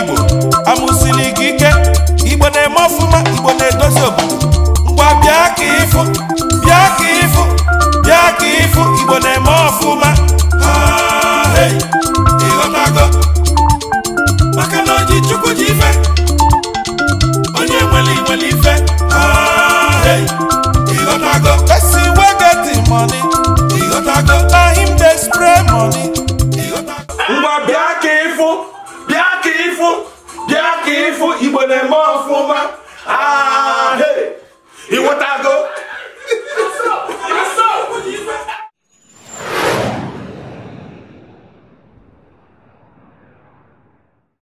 igbo amụsili gị ike igbo na-eme ọfụma igbo na-edozi obodo ngwa bịa ka ịfụ bịa ka ịfụ bịa ka ịfụ igbo na-eme ọfụma ịghọtago maka ife onye nwere ife ịghọtago ịfụ fún jẹ́ kí n fún ìbò